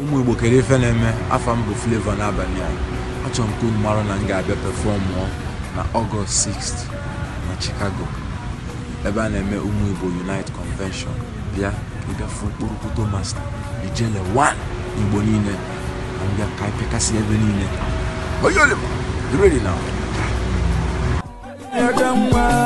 ụmụ igbo kere ife na-eme afọ mbụ bụ Flavour n'abalị a achọrọ m ka unu mara na m ga-abịa pefọmụọ na ọgọst 6 na Chicago ebe a na-eme ụmụ igbo Unite Convention bịa ịbịa fụ tomas masta ijele 1 igbo niile na mbịa ka ịpịakasị ebe niile oyolima ready